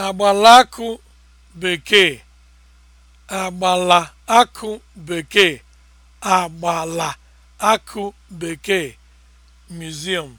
agbalaakụ bekee agbala akụ bekee agbala akụ bekee museum